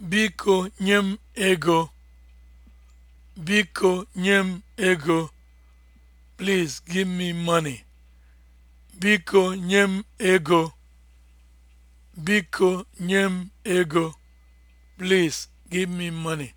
Biko nye m ego. Biko nye m ego. Please give Biko nye m ego. Please give me money.